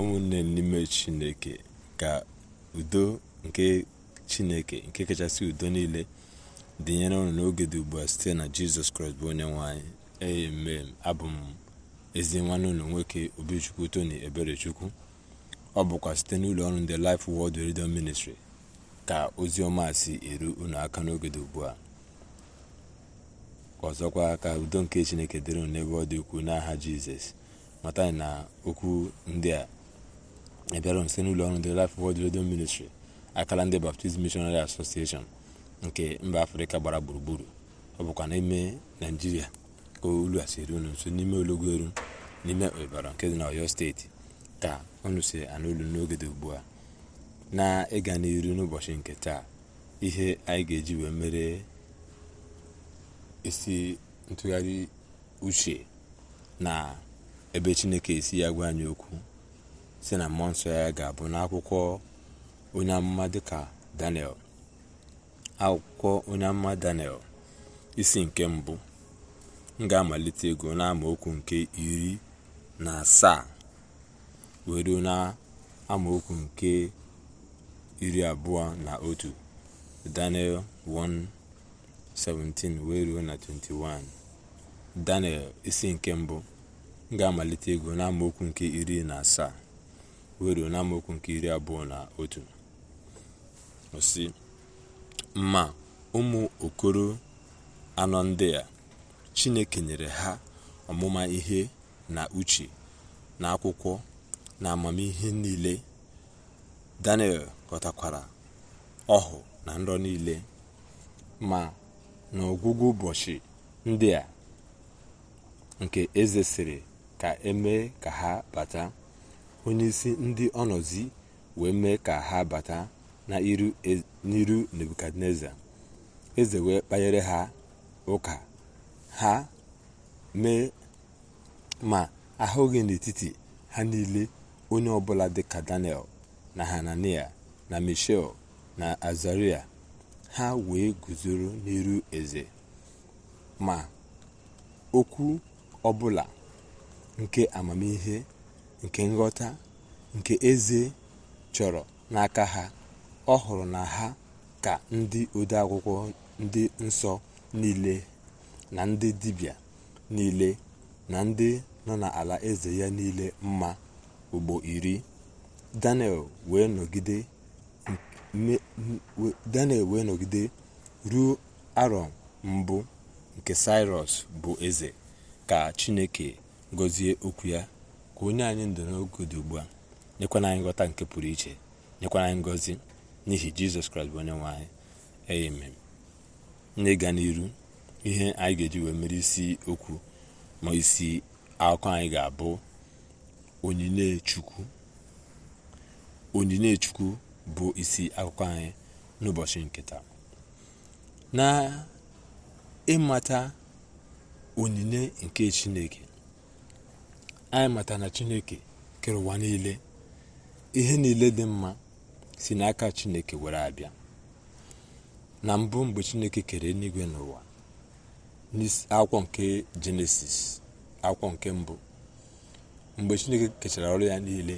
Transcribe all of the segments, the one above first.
ụmụnne n'ime chineke ka udo nke chineke nke kachasị udo niile dịnyere unu n'oge dị ugbu a site na jizọs kraịst bụ onye nwanyị amen abụ m ezi nwanne ụlọ nwoke obichukwu tony eberechukwu ọ bụkwa site n'ụlọ ọrụ ndị Life Word redio ministri ka ozi ọma si eru ụlọaka aka n'oge dị ugbu a ọzọkwa ka udo nke chineke dịrị unu n'ebe ọ dị ukwuu n'aha jizọs mata na okwu ndị a bịara nso n'ụlọ ọrụ The Life Word Radio Ministry akara ndị Baptist Missionary Association nke mba afrịka gbara gburugburu ọ bụkwa n'ime naijiria ka olu a siri unu nso n'ime eru n'ime ịbara nke dị na oyo steeti ka unu si anụ olu n'oge dị ugbu a na ịga n'iru n'ụbọchị nke taa ihe anyị ga-eji wee mere isi ntụgharị uche na ebe chineke esi ya gwa anyị okwu sị na mmụọ nsọ ya ga-abụ n'akwụkwọ onye amụma dịka daniel akwụkwọ onye amụma daniel isi nke mbụ m amalite ego n'amaokwu nke iri na asaa were na okwu nke iri abụọ na otu daniel 1:17 wee ruo na 21 daniel isi nke mbụ m amalite ego n'amaokwu nke iri na asaa wee n'amaokwu nke iri abụọ na otu osi ma ụmụ okoro anọ ndị a chineke nyere ha ọmụma ihe na uche na akwụkwọ na amamihe niile daniel ghọtakwara ọhụ na nrọ niile ma n'ọgwụgwụ ụbọchị ndị a nke eze sịrị ka emee ka ha bata onye isi ndị ọnọzi wee mee ka ha bata n'iru e, nebukadneza eze wee kpanyere ha ụka ha mee ma ahụghị n'etiti ha niile onye ọbụla ka daniel na hanania na michel na azaria ha wee guzoro n'iru eze ma okwu ọbụla nke amamihe nke nghọta nke eze chọrọ n'aka ha ọ hụrụ na ha ka ndị odeakwụkwọ ndị nsọ niile na ndị dibịa niile na ndị nọ n'ala eze ya niile mma ugbo iri daniel wee nọgide ruo arọ mbụ nke saịros bụ eze ka chineke gọzie okwu ya onye anyị ndụ n'oge dị ugbu a nyekwana anyị nghọta nke pụrụ iche nyekwana anyị ngọzi n'ihi jizọs kraịst bụ onye nwe anyị amen n'ịga n'iru ihe anyị ga-eji wee mere isi okwu ma isi akụkọ anyị ga-abụ onyinye chukwu onyinye chukwu bụ isi akụkọ anyị n'ụbọchị nke taa na ịmata onyinye nke chineke anyị mata na chineke kere ụwa niile ihe niile dị mma si n'aka chineke were abịa na mbụ mgbe chineke kere eluigwe n'ụwa n'akwụkwọ nke jenesis akwụkwọ nke mbụ mgbe chineke kechara ọrụ ya niile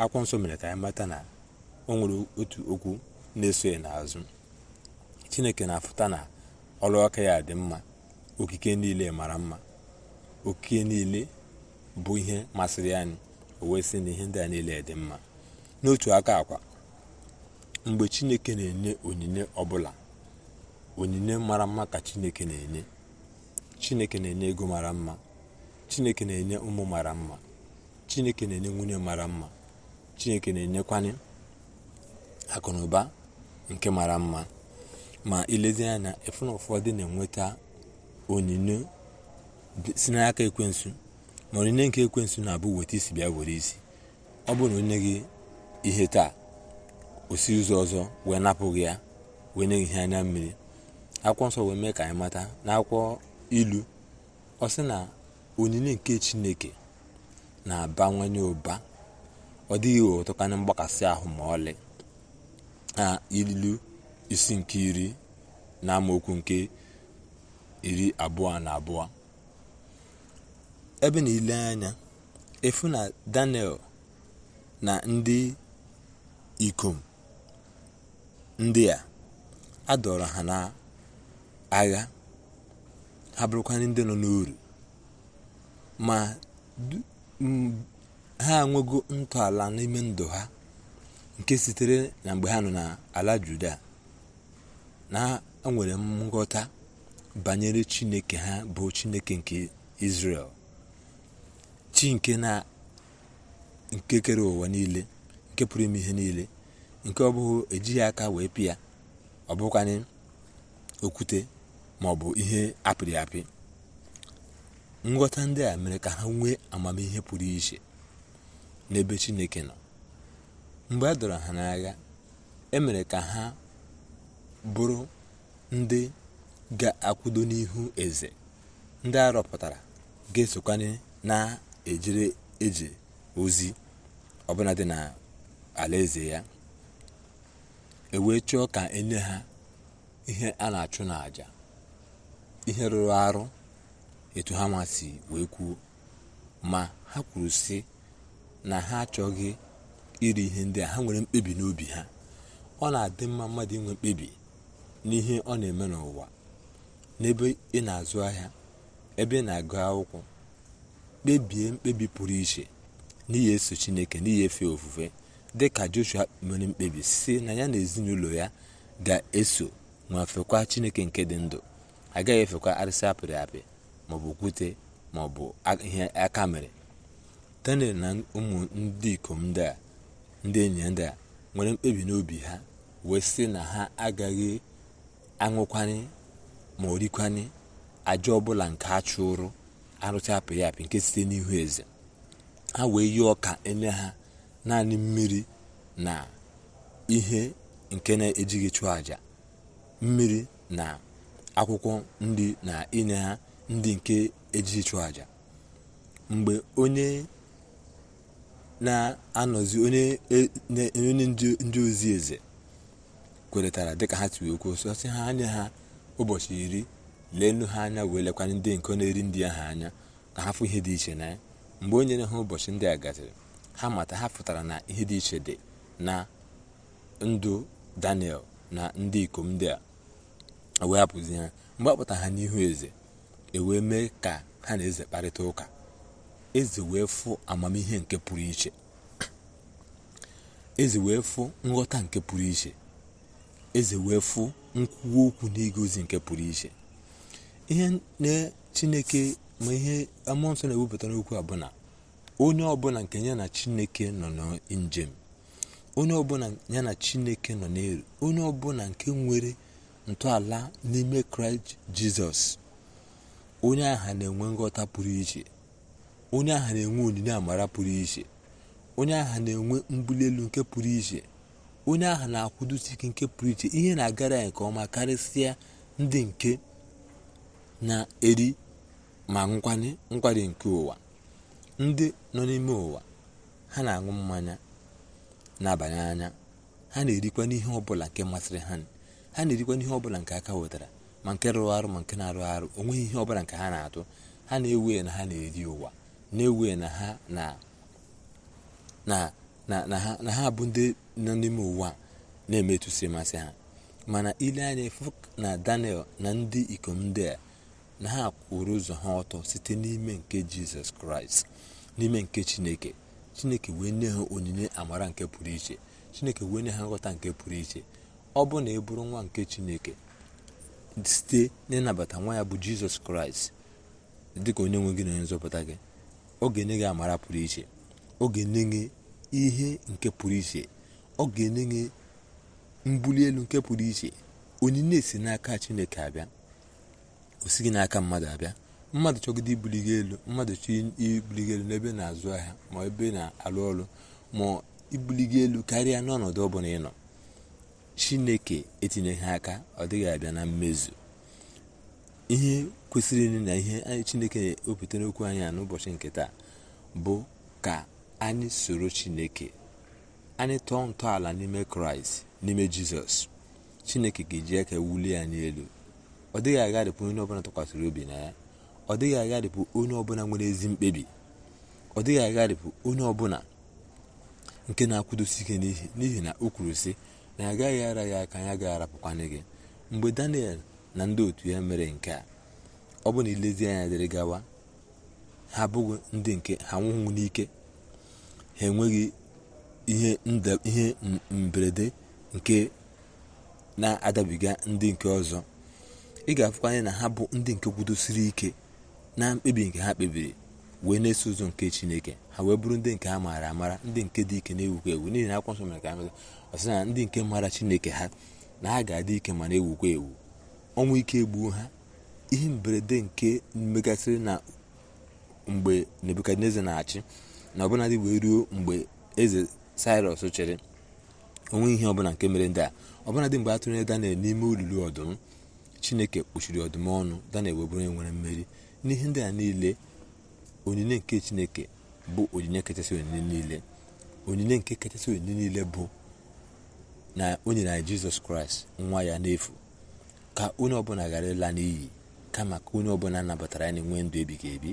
akwụkwọ nsọ mere ka anyị mata na o nwere otu okwu na-eso n'azụ chineke na-afụta na ọrụ aka ya dị mma okike niile mara mma okike niile bụ ihe masịrị anyị o wee sị na ihe ndị a niile dị mma n'otu aka akwa mgbe chineke na-enye onyinye ọbụla onyinye mara mma ka chineke na-enye chineke na-enye ego mara mma chineke na-enye ụmụ mara mma chineke na-enye nwunye mara mma chineke na-enyekwanye akụ na nke mara mma ma ilezie anya na ụfọdụ na-enweta onyinye si n'aka ekwensu ma onyinye nke ekwensu na-abụ weta isi bịa were isi ọ bụrụ na onye gị ihe taa osi ụzọ ọzọ wee napụghị ya wee nye ihe anya mmiri akwụkwọ nsọ wee mee ka anyị mata n'akwụkwọ ilu ọ sị na onyinye nke chineke na-abawanye ụba ọ dịghị ụtọkanye mgbakasị ahụ ma ọlị na ilu isi nke iri na amaokwu nke iri abụọ na abụọ ebe na ile anya efu na daniel na ndị ikom ndị a adọrọ ha n'agha ha bụrụkwana ndị nọ n'uru ma ha enwego ntọala n'ime ndụ ha nke sitere na mgbe ha nọ n'ala juda na ha nwere nghọta banyere chineke ha bụ chineke nke israel chi nke na nkekere ụwa niile nke pụrụ ime ihe niile nke ọ bụghị ejighị aka wee pịa ọ bụkwanye okwute ma ọ bụ ihe apịrị apị nghọta ndị a mere ka ha nwee amamihe pụrụ iche n'ebe chineke nọ mgbe a dọrọ ha n'agha e mere ka ha bụrụ ndị ga-akwụdo n'ihu eze ndị a ga-esokwanye na ejere eje ozi ọbụla dị na eze ya ewee chọọ ka enye ha ihe a na-achụ n'àjà ihe rụrụ arụ etu ha masị wee kwuo ma ha kwuru sị na ha achọghị iri ihe ndị a ha nwere mkpebi n'obi ha ọ na-adị mma mmadụ inwe mkpebi n'ihe ọ na-eme n'ụwa n'ebe ị na-azụ ahịa ebe ị na-agụ akwụkwọ kpebie mkpebi pụrụ iche n'ihi eso chineke n'ihi efe ofufe dị ka joshua mere mkpebi si na ya na ezinụlọ ya ga-eso ma fekwa chineke nke dị ndụ agaghị efekwa arịsị apịrị apị maọbụ okwute maọbụ ihe aka mere daniel na ụmụ ndị ikom ndị a ndị enyi ndị a nwere mkpebi n'obi ha wee sị na ha agaghị aṅụkwanye ma orikwanye aja ọbụla nke a chụrụ arụcha apị ya apị nke site n'ihu eze ha wee yi ọka enye ha naanị mmiri na ihe nke na-ejighị chụọ àjà mmiri na akwụkwọ nri na inye ha ndị nke ejighị chụọ àjà mgbe onye na-anọzi onye e-, ndị ozi eze kweretara dịka ha tiwekwu sọsị ha nye ha ụbọchị iri leenụ ha anya wee lekwa ndị nke na-eri ndị ahụ anya ka ha fụ ihe dị iche na ya mgbe onye na ha ụbọchị ndị a gasịrị ha mata ha pụtara na ihe dị iche dị na ndụ daniel na ndị ikom ndị a e wee hapụzi ha mgbe a ha n'ihu eze ewee mee ka ha na eze kparịta ụka eze wee fụ amamihe nke pụrụ iche eze wee fụ nghọta nke pụrụ iche eze wee fụ nkwuwa okwu n'igozi nke pụrụ iche ihe na chineke ma ihe amụọ nsọ na-ewepụta n'okwu a bụ na onye ọbụla nke ya na chineke nọ njem onye ọbụla ya na chineke nọ n'elu onye ọbụla nke nwere ntọala n'ime kraịst jizọs onye aha na-enwe nghọta pụrụ iche onye aha na-enwe onyinye amara pụrụ iche onye aha na-enwe mbuli elu nke pụrụ iche onye aha na-akwụdosi ike nke pụrụ iche ihe na-agara ya nke ọma karịsịa ndị nke na-eri ma nkwanye nkwari nke ụwa ndị nọ n'ime ụwa ha na-aṅụ mmanya na-abanye anya ha na-erikwa n'ihe ọbụla nke masịrị ha ha na-erikwa n'ihe ọbụla nke aka wetara ma nke rụrụ arụ ma nke na-arụ arụ onweghị ihe ọbụla nke ha na-atụ ha na-ewe na ha na-eri ụwa na-ewe na ha na ha bụ ndị nọ n'ime ụwa na-emetụsị masị ha mana ile anya fụ na daniel na ndị ikom ndị a na ha kwụrụ ụzọ ha ọtọ site n'ime nke jizọs kraịst n'ime nke chineke chineke wee nye ha onyinye amara nke pụrụ iche chineke wee nye ha nghọta nke pụrụ iche ọ bụ na ị e bụrụ nwa nke chineke site n'ịnabata nwa ya bụ jizọs kraịst dịka onye nwe gị na onye nzọpụta gị ọ ga-enye gị amara pụrụ iche ọ ga-enye gị ihe nke pụrụ iche ọ ga-enye gị mbuli elu nke pụrụ iche onyinye si n'aka chineke abịa o sighị n'aka mmadụ abịa mmadụ chọgide ibuligo elu mmadụ chọ ibuligo elu n'ebe na-azụ ahịa ma ebe na-alụ ọrụ ma ibuligo elu karịa n'ọnọdụ ọbụla ị nọ chineke etinyeghị aka ọ dịghị abịa na mmezu ihe kwesịrị na ihe chineke na-ewepụta n'okwu anyị a n'ụbọchị nke taa bụ ka anyị soro chineke anyị tọọ ntọala n'ime kraịst n'ime jizọs chineke ga-eji aka wulie anyị elu ọ dịghị agharịpụ onye ọbụla tụkwasịrị obi na ya ọ dịghị agharịpụ onye ọbụla nwere ezi mkpebi ọ dịghị agharịpụ onye ọbụla nke na-akwụdosi ike n'ihi na o kwuru sị na ya agaghị ara ya aka ya gaghị arapụkwana gị mgbe daniel na ndị otu ya mere nke a ọ bụ na ilezi anya dịrị gawa ha abụghị ndị nke ha nwụghị n'ike ha enweghị ihe mberede nke na-adabiga ndị nke ọzọ ị ga-afụkwa anya na ha bụ ndị nke kwudosiri ike na mkpebi nke ha kpebiri wee na-eso ụzọ nke chineke ha wee bụrụ ndị nke ha maara amara ndị nke dị ike na-ewukwa ewu n'ihi na akwụkwọ nsọ mere ka amata ọsị na ndị nke maara chineke ha na ha ga-adị ike ma na-ewukwa ewu ọnwụ ike egbuo ha ihe mberede nke megasịrị na mgbe nebukadneza na-achị na ọbụladị wee ruo mgbe eze sairọs chịrị onwe ihe ọbụla nke mere ndị a ọbụladị mgbe a tụnyere daniel n'ime olulu ọdụm chineke kpuchiri ọdụm ọnụ daniel na bụrụ onye nwere mmeri n'ihe ndị a niile onyinye nke chineke bụ onyinye kachasị onyinye niile onyinye nke kachasị onyinye niile bụ na o nyere anyị jizọs kraịst nwa ya n'efu ka onye ọbụla ghara ịla n'iyi kama ka onye ọbụla nabatara ya na enwe ndụ ebighị ebi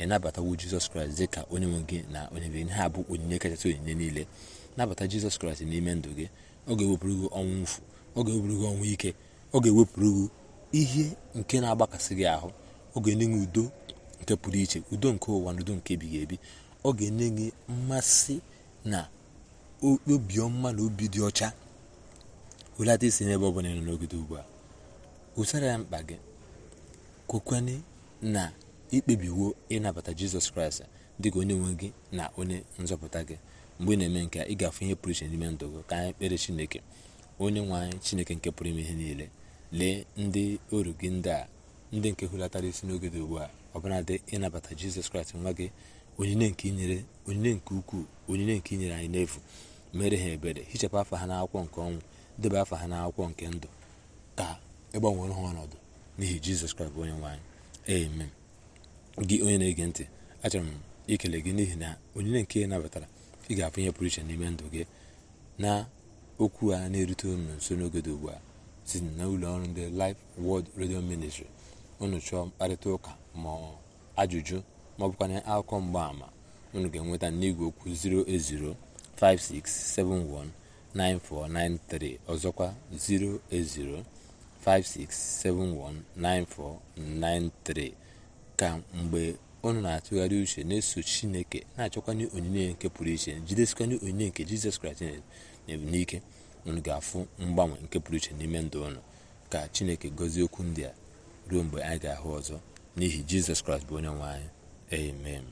ịnabatawo jizọs kraịst dị ka onye nwe gị na onye nwe gị bụ onyinye kachasị onyinye niile nabata jizọs kraịst n'ime ndụ gị ọ ga-ewepụrụ gị ọnwụ ọ ga-ewepụrụ gị ọnwụ ike ọ ga-ewepụrụ gị ihe nke na-agbakasị gị ahụ ọ ga-enye gị udo nke pụrụ iche udo nke ụwa na udo nke ebighị ebi ọ ga-enye gị mmasị na obiọma na obi dị ọcha welata isi n'ebe ọ bụla nọ n'ogide ugbu a usara ya mkpa gị kwekwane na ikpebiwo ịnabata jizọs kraịst dị ka onye nwe gị na onye nzọpụta gị mgbe ị na-eme nke ị ga-afụ ihe pụrụ iche n'ime ndụ gị ka anyị kpere chineke onye nwe anyị chineke nke pụrụ ime ihe niile lee ndị oru gị ndị a ndị nke hulatara isi n'oge dị ugbu a ọbụladị ịnabata jizọs kraịst nwa gị onyinye nke inyere onyinye nke ukwuu onyinye nke inyere anyị n'efu mere ha ebere hichapụ afa ha n'akwụkwọ nke ọnwụ debe afa ha n'akwụkwọ nke ndụ ka ịgbanwere ha ọnọdụ n'ihi jizọs kraịst bụ onye nwaanyị ee amen gị onye na-ege ntị achọrọ m ikele gị n'ihi na onyinye nke ị nabatara ị ga-afụ ihe pụrụ iche n'ime ndụ gị na okwu a na-erute nso n'oge dị ugbu a site na ụlọ ọrụ ndị Life World Radio Ministry unu chọọ mkparịta ụka ma ajụjụ ma akụkọ mgbaama unu ga-enweta n'igwe okwu 08056719493 ọzọkwa 08056719493 ka mgbe unu na-atụgharị uche na-eso chineke na-achọkwanye onyinye nke pụrụ iche jidesikanye onyinye nke jizọs kraịst n'ike unu ga-afụ mgbanwe nke pụrụ iche n'ime ndụ ụnụ ka chineke gọzie okwu ndị a ruo mgbe anyị ga-ahụ ọzọ n'ihi jizọs kraịst bụ onye nwe anyị amen